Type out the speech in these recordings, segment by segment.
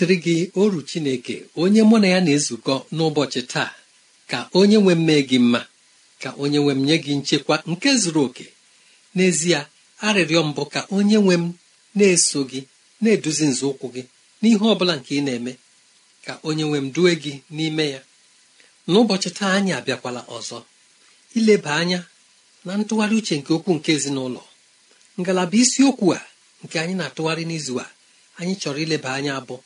dịrị gị oru chineke onye mụ na ya na-ezukọ n'ụbọchị taa ka onye nwe mme gị mma ka onye nwe m nye gị nchekwa nke zuru oke n'ezie arịrịọ mbụ ka onye nwe m na-eso gị na-eduzi nzọụkwụ gị n'ihe ọ bụla nke ị na-eme ka onye nwe m due gị n'ime ya n'ụbọchị taa anyị abịakwala ọzọ ileba anya na ntụgharị uche nke okwu nke ezinụlọ ngalaba isiokwu a nke anyị na-atụgharị n'izu a anyị chọrọ ileba anya abụọ.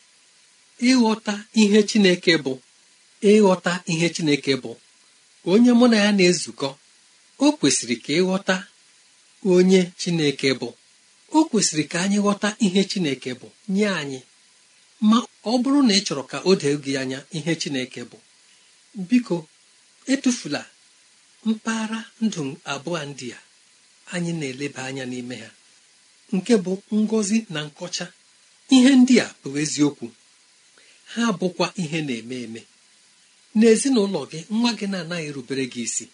ịghọta ihe chineke bụ ịghọta ihe chineke bụ onye mụ na ya na-ezukọ o kwesịrị ka ịghọta onye chineke bụ o kwesịrị ka anyị ghọta ihe chineke bụ nye anyị ma ọ bụrụ na ị chọrọ ka o dee gị anya ihe chineke bụ biko etufula mpaghara ndụ abụọ ndị a anyị na-eleba anya n'ime ha nke bụ ngozi na nkọcha ihe ndị a bụ eziokwu ha bụkwa ihe na-eme eme n'ezinụlọ gị nwa gị na-anaghị erubere gị isi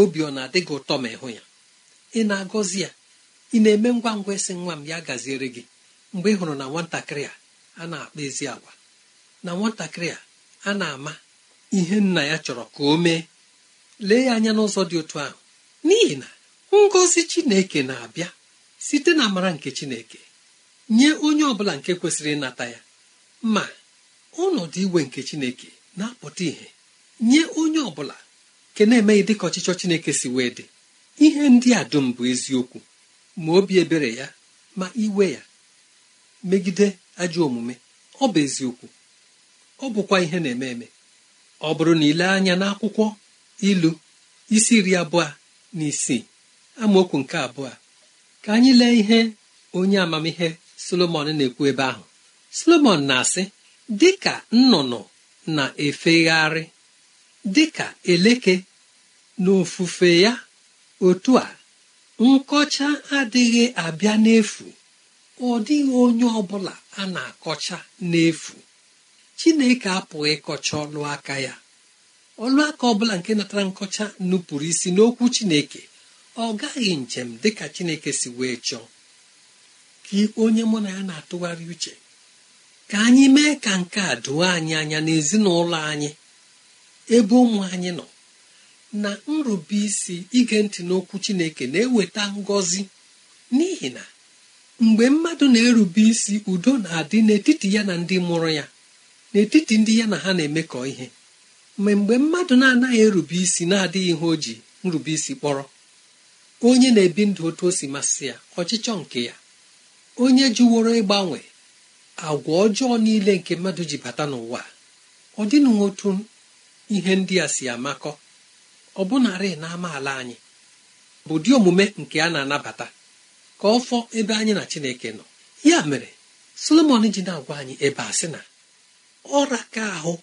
obi ọ na-adị gị ụtọ ma ịhụ ya ị na-agọzi ya ị na-eme ngwa ngwa ịsị nwa m ya gaziere gị mgbe ị hụrụ na nwatakịrị a a na-akpa ezi agwa na nwatakịrị a a na-ama ihe nna ya chọrọ ka o mee lee ya anya n'ụzọ dị otu ahụ n'ihi na ngọzi chineke na-abịa site na amara nke chineke nye onye ọ bụla nke kwesịrị ịnata ya ma ọnọdụ igwe nke chineke na-apụta ihe nye onye ọ bụla nke na-emeghị dịka ọchịchọ chineke si wee dị ihe ndị a dum bụ eziokwu ma obi ebere ya ma iwe ya megide ajọ omume ọ bụ eziokwu ọ bụkwa ihe na-eme eme ọ bụrụ na ile anya n'akwụkwọ ilu isi iri abụọ na isii amaokwu nke abụọ ka anyị lee ihe onye amamihe solomon na-ekwu ebe ahụ solomon na-asị dịka nnụnụ na-efegharị dịka eleke n'ofufe ya otu a nkọcha adịghị abịa n'efu ọ dịghị onye ọ bụla a na-akọcha n'efu chineke apụghị ịkọcha ọlụ aka ya ọlụaka aka ọ nke natara nkọcha nupụrụ isi n'okwu chineke ọ gaghị njem dịka chineke si wee chọọ ka onye mụ na ya na-atụgharị uche ka anyị mee ka nke a doo anyị anya n'ezinụlọ anyị ebe ụmụ anyị nọ na nrube isi ige ntị n'okwu chineke na-eweta ngọzi n'ihi na mgbe mmadụ na-erube isi udo na-adị n'etiti ya na ndị mụrụ ya n'etiti ndị ya na ha na-emekọ ihe ma mgbe mmadụ na-anaghị erube isi na-adịghị ihe o ji nrube isi kpọrọ onye na-ebi ndụ otu o si masị ya ọchịchọ nke ya onye jụworo ịgbanwe agwa ọjọọ niile nke mmadụ ji bata n'ụwa ọ dịnụ otu ihe ndị a si amakọ ọ bụnarị na amaala anyị bụ dị omume nke a na-anabata ka ọ fọ ebe anyị na Chineke nọ ya mere Solomon ji na-agwa anyị ebe a sị na ọra ka ahụ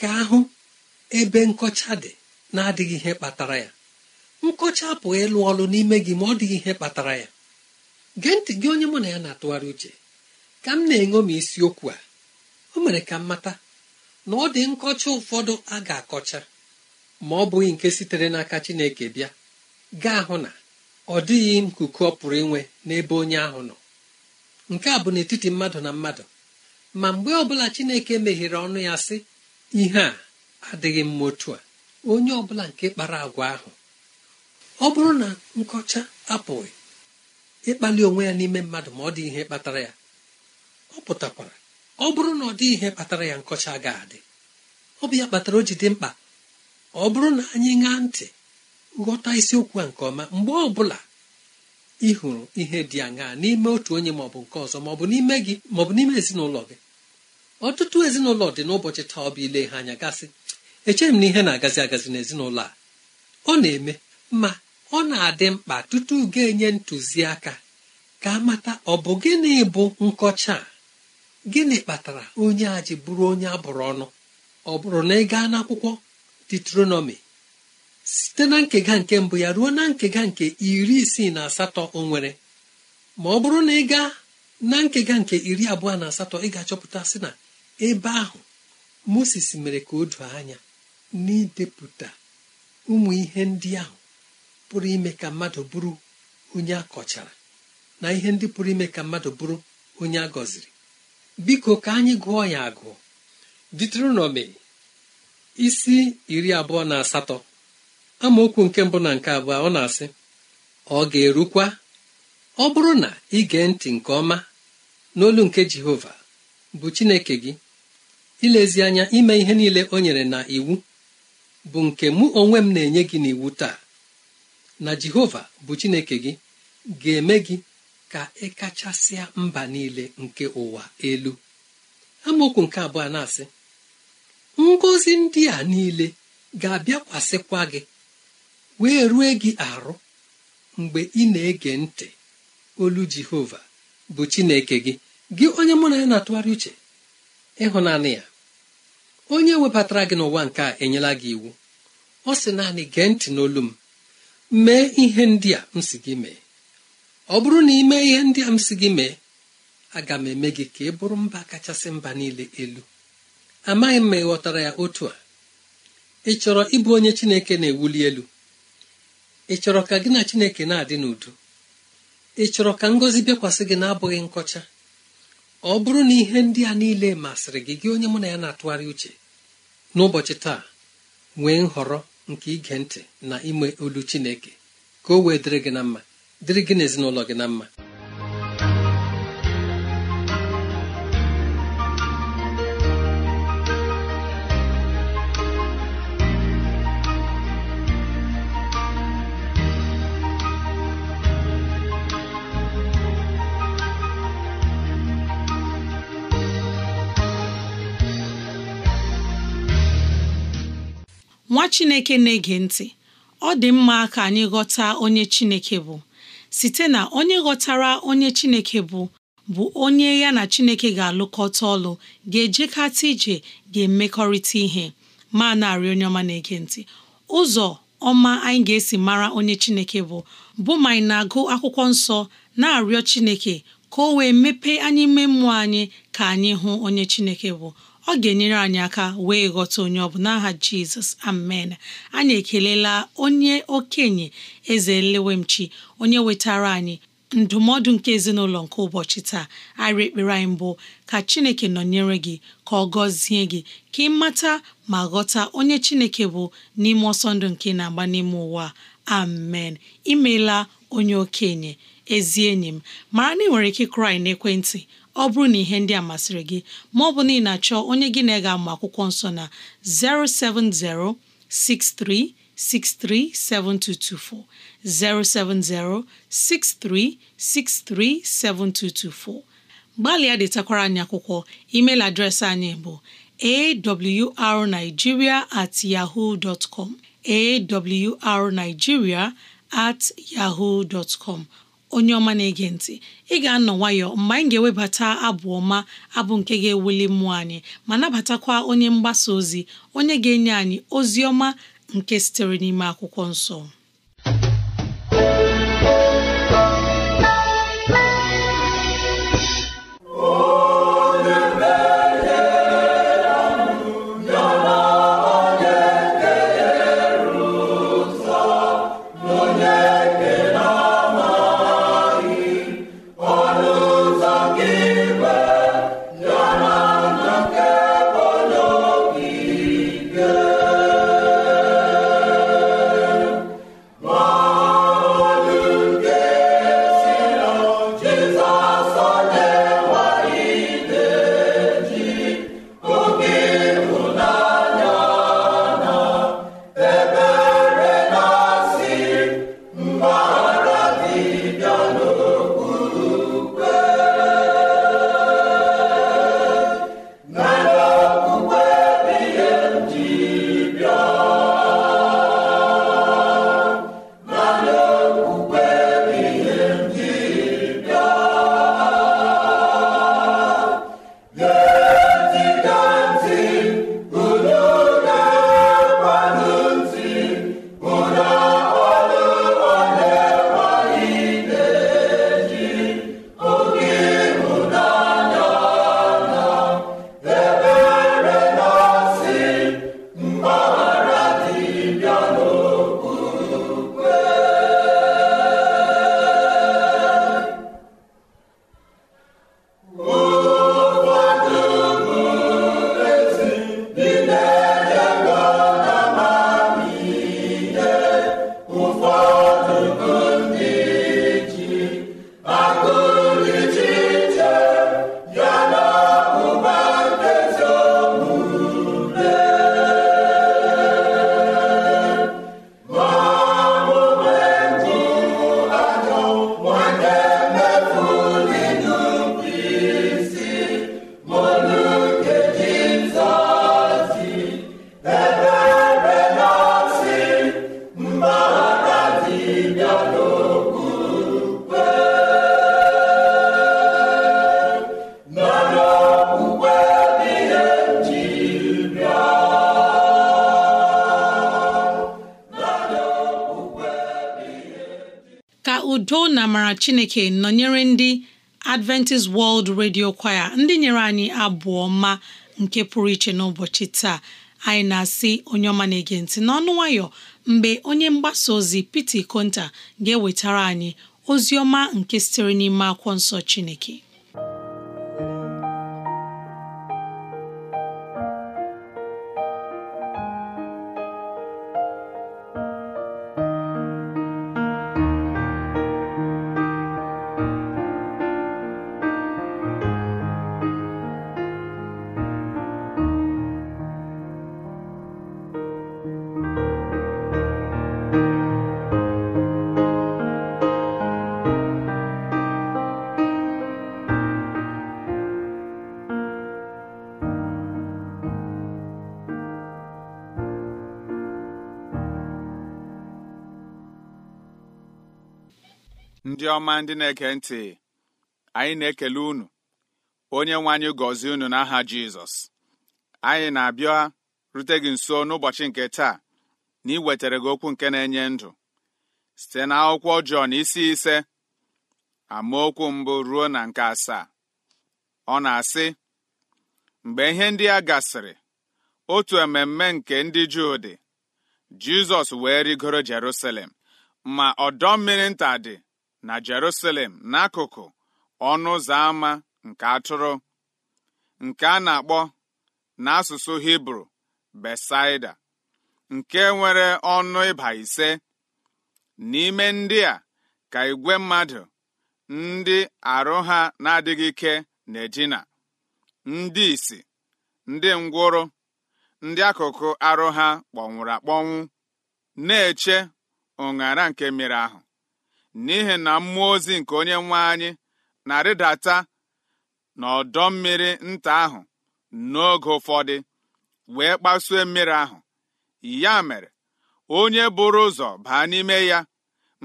ka ahụ ebe nkọcha dị na-adịghị ihe kpatara ya nkọcha apụghị ịlụ ọlụ n'ime gị ma ọ dịghị ihe kpatara ya gee ntị gị onye mụ na ya na-atụgharị uche ka m na-eṅomi isiokwu a o mere ka m mata na ọ dị nkọcha ụfọdụ a ga-akọcha ma ọ bụghị nke sitere n'aka Chineke bịa gaa hụ na ọ dịghị nkuku ọ pụrụ inwe n'ebe onye ahụ nọ nke a bụ n'etiti mmadụ na mmadụ ma mgbe ọbụla Chineke meghere ọnụ ya sị ihe a adịghị mma otu a onye ọbụla nke kpara agwa ahụ ọ bụrụ na nkọcha apụghị ịkpali onwe ya n'ime mmadụ ma ọ dị ihe kpatara ya ọ pụtakwara ọ bụrụ na ọ dị ihe kpatara ya nkọcha ga-adị ọ bụ ya kpatara o ji dị mkpa ọ bụrụ na anyị ṅaa ntị ghọta isiokwu a nke ọma mgbe ọ bụla ị hụrụ ihe dị aṅaa n'ime otu onye ma ọ bụ nke ọzọ ma ọ bụ n'ime gị ma ọ bụ n'ime ezinụlọ gị ọtụtụ ezinụlọ dị n'ụbọchị taa ọ bụ ile ha anya gasị echeghị m na ihe na-agazi agazi n'ezinụlọ a ọ na-eme ma ọ na-adị mkpa tutu ga-enye ntụziaka ka amata ọ bụ gịnị bụ nkọcha a gịnị kpatara onye a ji bụrụ onye abụrụ ọnụ ọ bụrụ na ị gaa n'akwụkwọ detronomi site na nkega nke mbụ ya ruo na nkega nke iri isii na asatọ o nwere ma ọ bụrụ na ị gaa na nkega nke iri abụọ na asatọ ị ga-achọpụta sị na ebe ahụ moses mere ka o doo anya n'idepụta ụmụ ihe ndị ahụ pụrụ ime ka mmadụ bụrụ onye akọchara na ihe ndị pụrụ ime ka mmadụ bụrụ onye a gọziri biko ka anyị gụọ ya agụ ditronomi isi iri abụọ na asatọ amaokwu nke mbụ na nke abụọ ọ na-asị ọ ga-erukwa ọ bụrụ na ị gee ntị nke ọma n'olu nke Jehova bụ Chineke gị ilezi anya ime ihe niile o nyere na iwu bụ nke mụ onwe m na-enye gị n'iwu taa na Jehova bụ Chineke gị ga-eme gị ka ị e kachasịa mba niile nke ụwa elu amaokwu nke abụọ na-asị ngọzi ndị a niile ga-abịakwasịkwa gị wee rue gị arụ mgbe ị na-ege ntị olu jehova bụ chineke gị gị onye mụ na ya na-atụgharị uche ịhụnanị ya onye webatara gị n'ụwa nke a enyela gị iwu ọ sị naanị gee ntị n'olu m mee ihe ndị a m si gị mee ọ bụrụ na ime ihe ndị a m si gị mee aga m eme gị ka ị bụrụ mba kachasị mba niile elu amaghị m ma ị ghọtara ya otu a ị chọrọ ịbụ onye chineke na-ewuli elu ị chọrọ ka gị na chineke na-adị n'udo ị chọrọ ka ngọzi bịakwasị gị na-abụghị nkọcha ọ bụrụ na ihe ndị a niile masịrị gị gị onye mụ na ya na-atụgharị uche n'ụbọchị taa nwee nhọrọ nke ige ntị na ime olu chineke ka o wee dịrị gị na mma dịrị gị na ezinụlọ gị na mma nwa chineke na-ege ntị ọ dị mma ka anyị ghọta onye chineke bụ site na onye ghọtara onye Chineke bụ bụ onye ya na Chineke ga-alụkọta ọlụ ga-ejekata ije ga-emekọrịta ihe ma narị onye ọma na-ege ntị ụzọ ọma anyị ga-esi mara onye Chineke bụ bụ ma anyị na-agụ akwụkwọ nsọ na-arịọ Chineke ka o wee mepee anyị ime mmụọ anyị ka anyị hụ onye Chineke bụ ọ ga-enyere anyị aka wee ghọta onye ọ bụ n'aha jizọs amen anyị ekelela onye okenye eze lewemchi onye wetara anyị ndụmọdụ nke ezinụlọ nke ụbọchị taa arị ekpere anyị mbụ ka chineke nọnyere gị ka ọ gọzie gị ka ị mata ma ghọta onye chineke bụ n'ime ọsọ nke na-agba n'ime ụwa amen imeela onye okenye ezi enyi m mara na ị nwere ike krai n'ekwentị ọ bụrụ na ihe ndị a masịrị gị ma ọ bụ na ị na-achọ onye gị na ege ama akwụkwọ nsọ na 07063637224 07063637224 gbalịa detakwara anyị akwụkwọ email adreesị anyị bụ awrnigeria at yahoo at yahoo onye ọma na-ege ntị ị ga-anọ nwayọ mgbe anyị ga-ewebata abụ ọma abụ nke ga-ewuli mmụọ anyị ma nabatakwa onye mgbasa ozi onye ga-enye anyị ozi ọma nke sitere n'ime akwụkwọ nsọ maara chineke nọnyere ndị adventist world radio kwaya ndị nyere anyị abụọ ma nke pụrụ iche n'ụbọchị taa anyị na-asị onye ọma na-ege ntị n'ọnụ nwayọ mgbe onye mgbasa ozi Piti Konta ga-ewetara anyị ozi ọma nke sitere n'ime akwụkwọ nsọ chineke ndị ọma ndị na-ege ntị anyị na-ekele unu onye nwe anyị gọzie unu n'aha Jizọs anyị na-abịa rute gị nso n'ụbọchị nke taa na ị wetara gị okwu nke na-enye ndụ site na akwụkwọ Jọn isi ise amaokwu mbụ ruo na nke asaa ọ na-asị mgbe ihe ndị a gasịrị otu ememme nke ndị Juu dị Jizọs wee rigoro Jerusalem ma ọdọ mmiri nta dị na Jerusalem n'akụkụ ọnụ ụzọ ámá nke atụrụ nke a na-akpọ n'asụsụ Hibru Besaida nke nwere ọnụ ịba ise n'ime ndị a ka igwe mmadụ ndị arụ ha na-adịghị ike na-edina ndị isi ndị ngwụrụ ndị akụkụ arụ ha kpọnwụrụ akpọnwụ na-eche ụṅara nke mmiri ahụ n'ihi na mmụọ ozi nke onye nwe anyị na-arịdata n'ọdọ mmiri nta ahụ n'oge ụfọdụ wee kpasuo mmiri ahụ ya mere onye bụrụ ụzọ baa n'ime ya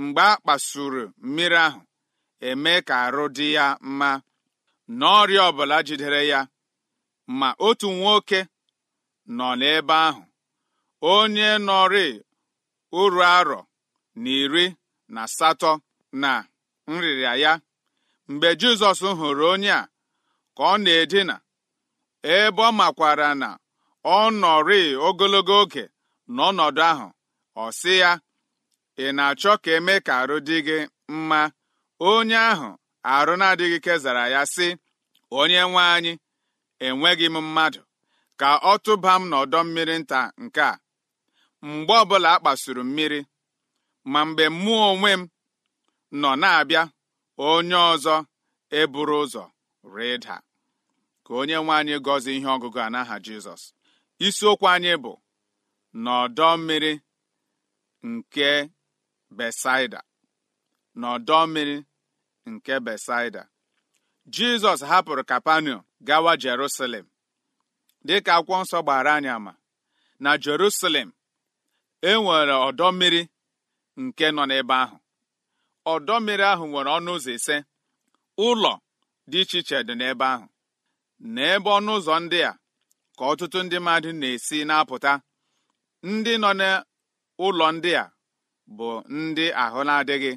mgbe a kpasuru mmiri ahụ eme ka arụ dị ya mma n'ọrịa ọbụla jidere ya ma otu nwoke nọ n'ebe ahụ onye nọrị uru arọ na iri na asatọ na nrịrịa ya mgbe Jizọs hụrụ onye a ka ọ na-edina ebe ọ makwara na ọ nọrị ogologo oge n'ọnọdụ ahụ ọ sị ya ị na-achọ ka eme ka arụ dị gị mma onye ahụ arụ na-adịghị kezara ya sị onye nwe anyị enweghị m mmadụ ka ọ tụba m n'ọdọ mmiri nta nke a mgbe ọbụla a kpasuru mmiri ma mgbe mụ onwe m nọ na-abịa onye ọzọ eburu ụzọ rịda ka onye nwe anyị gọzie ihe ọgụgụ a n'aha Jizọs isiokwu anyị bụ n'ọdọ mmiri nke Besaida n'ọdọ mmiri nke Besaida Jizọs hapụrụ Kapanọm gawa Jerusalem dịka akwụkwọ nsọ gbara anyị ama na Jerusalem e nwere ọdọ mmiri nke nọ n'ebe ahụ ọdọ mmiri ahụ nwere ọnụ ụzọ ise ụlọ dị iche iche dị n'ebe ahụ n'ebe ọnụ ụzọ ndị a ka ọtụtụ ndị mmadụ na-esi na-apụta ndị nọ n'ụlọ ndị a bụ ndị ahụ na-adịghị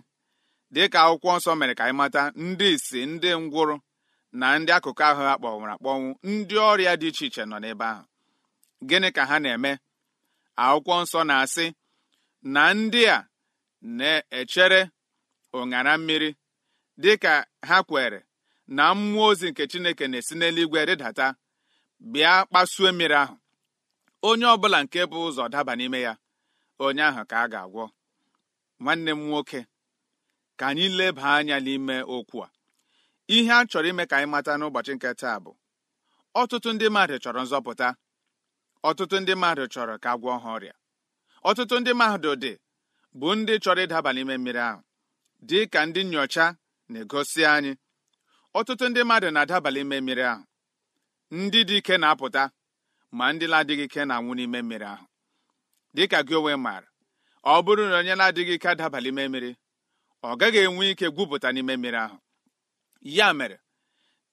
dịka akwụkwọ nsọ mere ka anyị mata ndị isi ndị ngwụrụ na ndị akụkụ ahụ a kpọnwụrụ akpọnwụ ndị ọrịa dị iche iche nọ n'ebe ahụ gịnị ka ha na-eme akwụkwọ nsọ na-asị na ndị a na-echere ụṅara mmiri dị ka ha kwere na mmụọ ozi nke Chineke na-esi n'eluigwe rịdata bịa kpasuo mmiri ahụ onye ọbụla nke bụ ụzọ daba n'ime ya onye ahụ ka a ga-agwọ nwanne m nwoke ka anyị leba anya n'ime okwu a ihe a chọrọ ime ka anyị mata n'ụbọchị nke taa bụ ọtụtụ ndị mmadụ chọrọ nzọpụta ọtụtụ ndị mmadụ chọrọ ka agwọ ha ọrịa ọtụtụ ndị mmadụ dị bụ ndị chọrọ ịdaba n'ime mmiri ahụ dị ka ndị nyocha na-egosi anyị ọtụtụ ndị mmadụ na-adaba n'ime mmiri ahụ ndị dị ike na-apụta ma ndị na-adịghị ike na-anwụ n'ime mmiri ahụ dị ka gị onwe maara ọ bụrụ na onye na-adịghị ike adaba n'ime mmiri ọ gaghị enwe ike gwupụta n'ime mmiri ahụ ya mere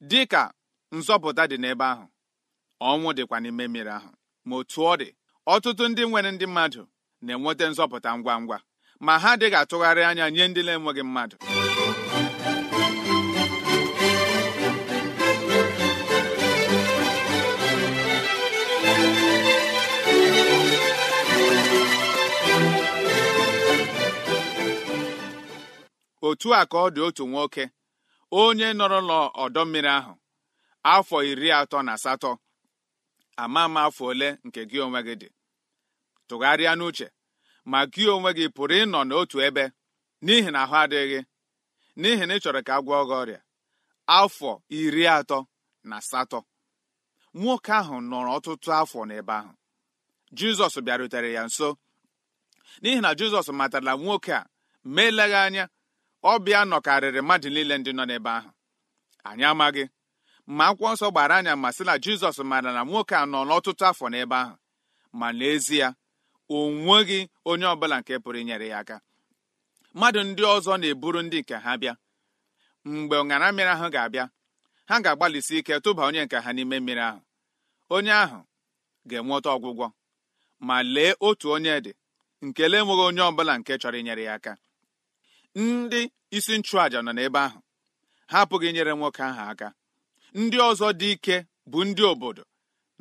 dị ka nzọpụta dị n'ebe ahụ ọnwụ dịkwa n'ime mmiri ahụ ma otu ọ dị ọtụtụ ndị nwere ndị mmadụ na-enweta nzọpụta ngwa ngwa ma ha adịghị atụgharị anya nye ndị na-enweghị mmadụ otu a ka ọ dị otu nwoke onye nọrọ n'ọdọ mmiri ahụ afọ iri atọ na asatọ ama ama afọ ole nke gị onwe gị dị tụgharịa n'uche ma gị onwe gị pụrụ ịnọ n'otu ebe n'ihi na ahụ adịghị n'ihi na ị chọrọ ka a gwọọ gị ọrịa afọ iri atọ na asatọ nwoke ahụ nọrọ ọtụtụ afọ n'ebe ahụ jizọs bịarutere ya nso n'ihi na jizọs matara nwoke a ma eleghị anya ọbịa nọkarịrị mmadụ niile ndị nọ n'ebe ahụ anyị amaghị ma akwụkwọ nsọ gbara anya ma sị na jizọs mara na nwoke a nọ n'ọtụtụ afọ n'ebe ahụ ma n'ezie onweghị onye ọbụla nke pụrụ inyere ya aka mmadụ ndị ọzọ na-eburu ndị nke ha bịa mgbe ọṅara mmiri ahụ ga-abịa ha ga-agbalịsi ike tụba onye nke ha n'ime mmiri ahụ onye ahụ ga-enweta ọgwụgwọ ma lee otu onye dị nke lee enweghị onye ọbụla nke chọrọ inyere ya aka ndị isi nchụàja nọ n'ebe ahụ ha apụghị inyere nwoke ahụ aka ndị ọzọ dị ike bụ ndị obodo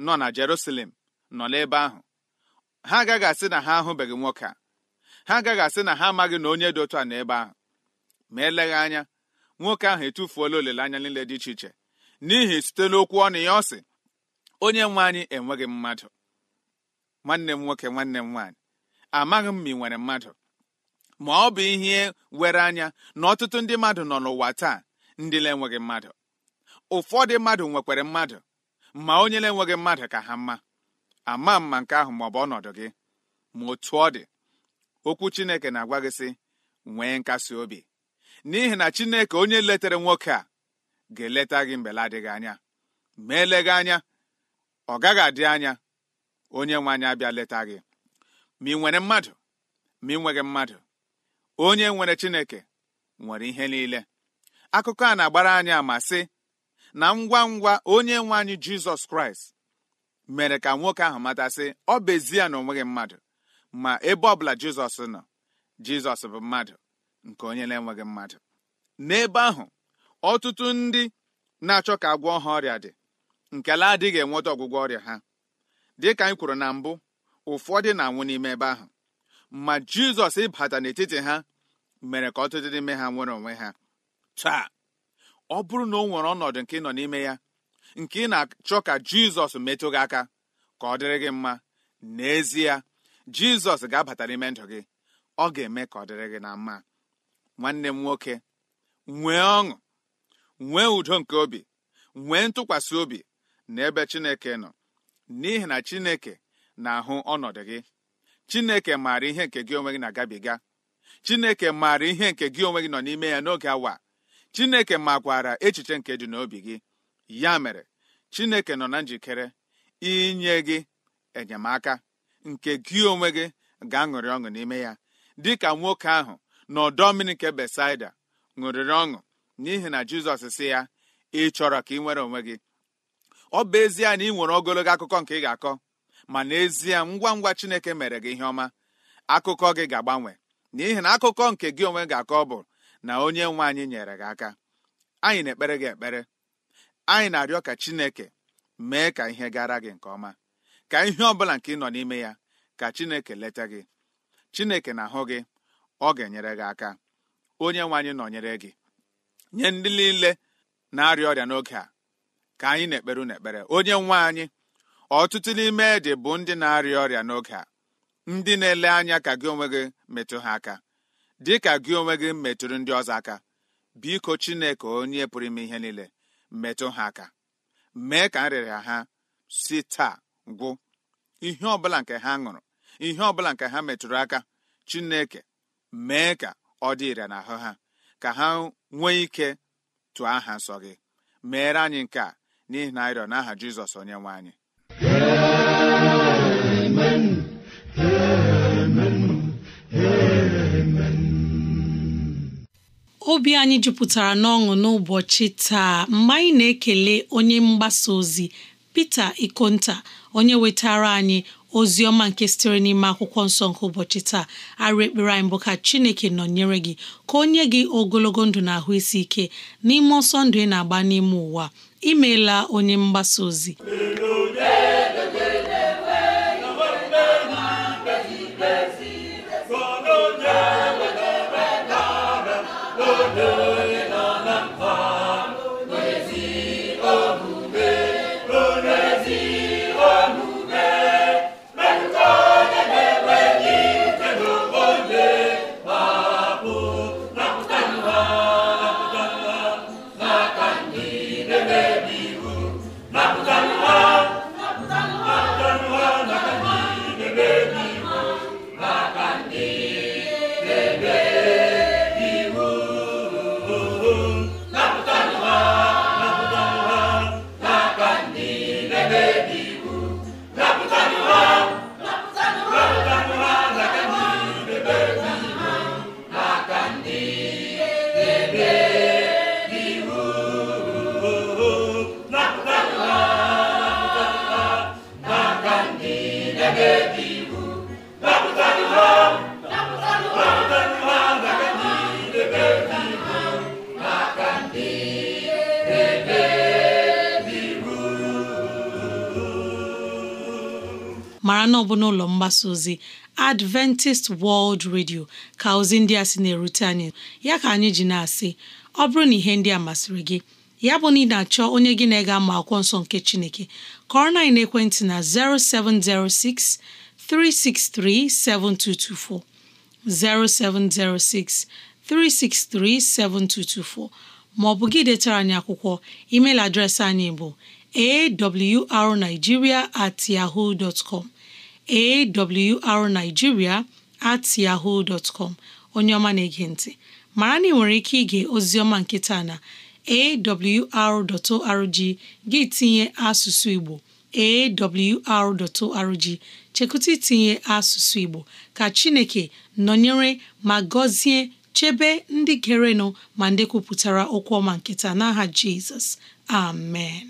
nọ na Jerusalem nọ n'ebe ahụ ha agaghị asị na ha ahụbeghị nwoke a ha agaghị asị na ha amaghị na onye dị otu a na ebe ahụ ma eleghị anya nwoke ahụ etufuola olileanya niile dị iche iche n'ihi site n'okwu ọnụ ya ọ sị onye nwe anyị enweghị mmadụ nwanne m nwoke nwanne m nwaanyị amaghị m ma ị nwere mmadụ ma ọ bụ ihe were anya na ọtụtụ ndị mmadụ nọ n'ụwa taa ndị na-enweghị mmadụ ụfọdụ mmadụ nwekwara mmadụ ma onye na-enweghị mmadụ ka ha mma ama mma nke ahụ bụ ọnọdụ gị ma otu ọ dị okwu Chineke na-agwa gị sị nwee nkasi obi n'ihi na Chineke onye letere nwoke a ga-eleta gị la adịghị anya ma eleghị anya ọ gaghị adị anya onye nwe anyị abịa leta gị ma ị nwere mmadụ ma ị nweghị mmadụ onye nwere Chineke nwere ihe niile akụkọ a na-agbara anyị ama sị na ngwa ngwa onye nwe anyị Jizọs Kraịst mere ka nwoke ahụ matasị ọ bụ ya na onweghị nweghị mmadụ ma ebe ọbụla jizọs nọ jizọs bụ mmadụ nke onye na-enweghị mmadụ n'ebe ahụ ọtụtụ ndị na-achọ ka agwọ ha ọrịa dị nkele adịghị enweta ọgwụgwọ ọrịa ha dịka anyị kwuru na mbụ ụfọdụ na-anwụ n'ime ebe ahụ ma jizọs ịbata n'etiti ha mere ka ọtụtụ n'ime ha nwere onwe ha taa ọ bụrụ na o nwere ọnọdụ nke ị nọ n'ime ya nke ị na-achọ ka jizọs metụ gị aka ka ọ dịrị gị mma n'ezie jizọs ga-abata n'ime ndụ gị ọ ga-eme ka ọ dịrị gị na mma nwanne m nwoke nwee ọṅụ nwee udo nke obi nwee ntụkwasị obi na ebe chineke nọ n'ihi na chineke na-ahụ ọnọdụ gị chineke maara ihe nke gị onwe gị na-agabiga chineke maara ihe nke gị onwe gị nọ n'ime ya n'oge awa chineke makwara echiche nke dị n'obi gị ya mere chineke nọ na njikere inye gị enyemaka nke gị onwe gị ga-aṅụrị ọṅụ n'ime ya dịka nwoke ahụ n'ọdọ mmiri nke besaida ṅụrịrị ọṅụ n'ihi na jizọs si ya ị chọrọ ka ị nwere onwe gị ọ bụ ezie na ị nwere ogologo akụkọ nke ị ga-akọ ma n'ezie ngwa ngwa chineke mere gị ihe ọma akụkọ gị ga-agbanwe n'ihi na akụkọ nke gị onwe ga-akọ bụ na onye nwe anyị nyere gị aka anyị na-ekpere gị ekpere anyị na-arịọ ka chineke mee ka ihe gara gị nke ọma ka ihe ọ bụla nke ị nọ n'ime ya ka chineke leta gị chineke na-ahụ gị ọ ga-enyere gị aka onye nwe anyị nọnyere gị nye ndị niile na-arịa ọrịa n'oge a ka anyị na-ekperu n'ekpere onye nwe anyị ọtụtụ n'ime dị bụ ndị na-arịa ọrịa n'oge a ndị na-ele anya ka gị onwe gị metụ ha aka dị ka gị onwe gị metụrụ ndị ọzọ aka biko chineke onye pụrụ ime ihe niile metụ ha aka mee ka nrịrịa ha si taa gwụ ihe ọbụla nke ha ṅụrụ ihe ọbụla nke ha metụrụ aka chineke mee ka ọ dị ire n'ahụ ha ka ha nwee ike tụọ aha nsọ gị meere anyị nke a n'ihi na arịọ n'aha jizọs onye nwe anyị Amen. obi anyị jupụtara n'ọṅụ n'ụbọchị taa mgbe anyị na-ekele onye mgbasa ozi Pita Ikonta onye wetara anyị ozi ọma nke sitere n'ime akwụkwọ nsọ nke ụbọchị taa arụ ekpere anyị bụ ka Chineke nọ nyere gị ka o nye gị ogologo ndụ na ahụ isi ike n'ime ọsọ ndụ ị na-agba n'ime ụwa imeela onye mgbasa ozi mgbasa ozi Adventist World Radio ka ozi ndị a sị na-erute anyị ya ka anyị ji na-asị ọ bụrụ na ihe ndị a masịrị gị ya bụ na ị na-achọ onye gị na-ega ma akwụkwọ nsọ nke Chineke kọrọ na ekwentị na 0706 363 7224 0706 363 7224 ma ọ bụ gị detara anyị akwụkwọ email adreesị anyị bụ awrnigeria at yahoo dot com arnigiria at onye ọma na-ege ntị mara na ị nwere ike ige oziọma nkịta na awr.org gị tinye asụsụ Igbo awr.org chekụta itinye asụsụ Igbo ka Chineke nọnyere ma gọzie chebe ndị gerenụ ma ndị kwupụtara okwu ọma nkịta n'aha Jizọs amen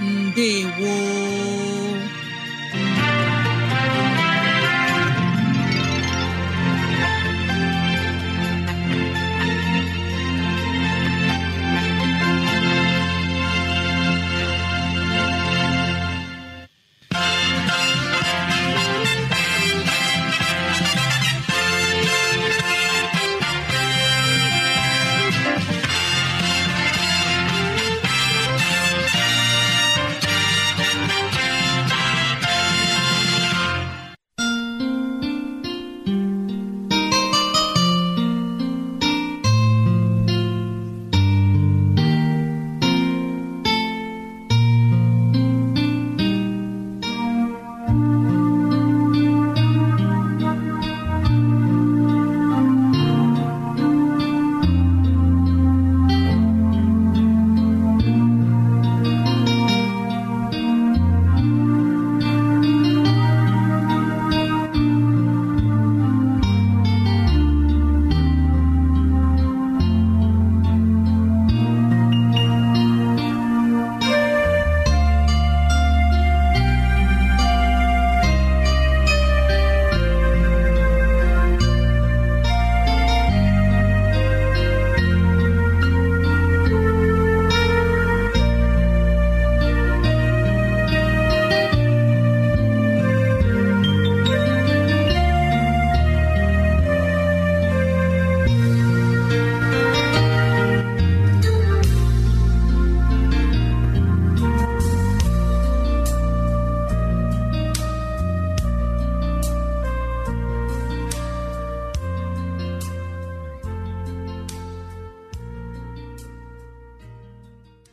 ndewo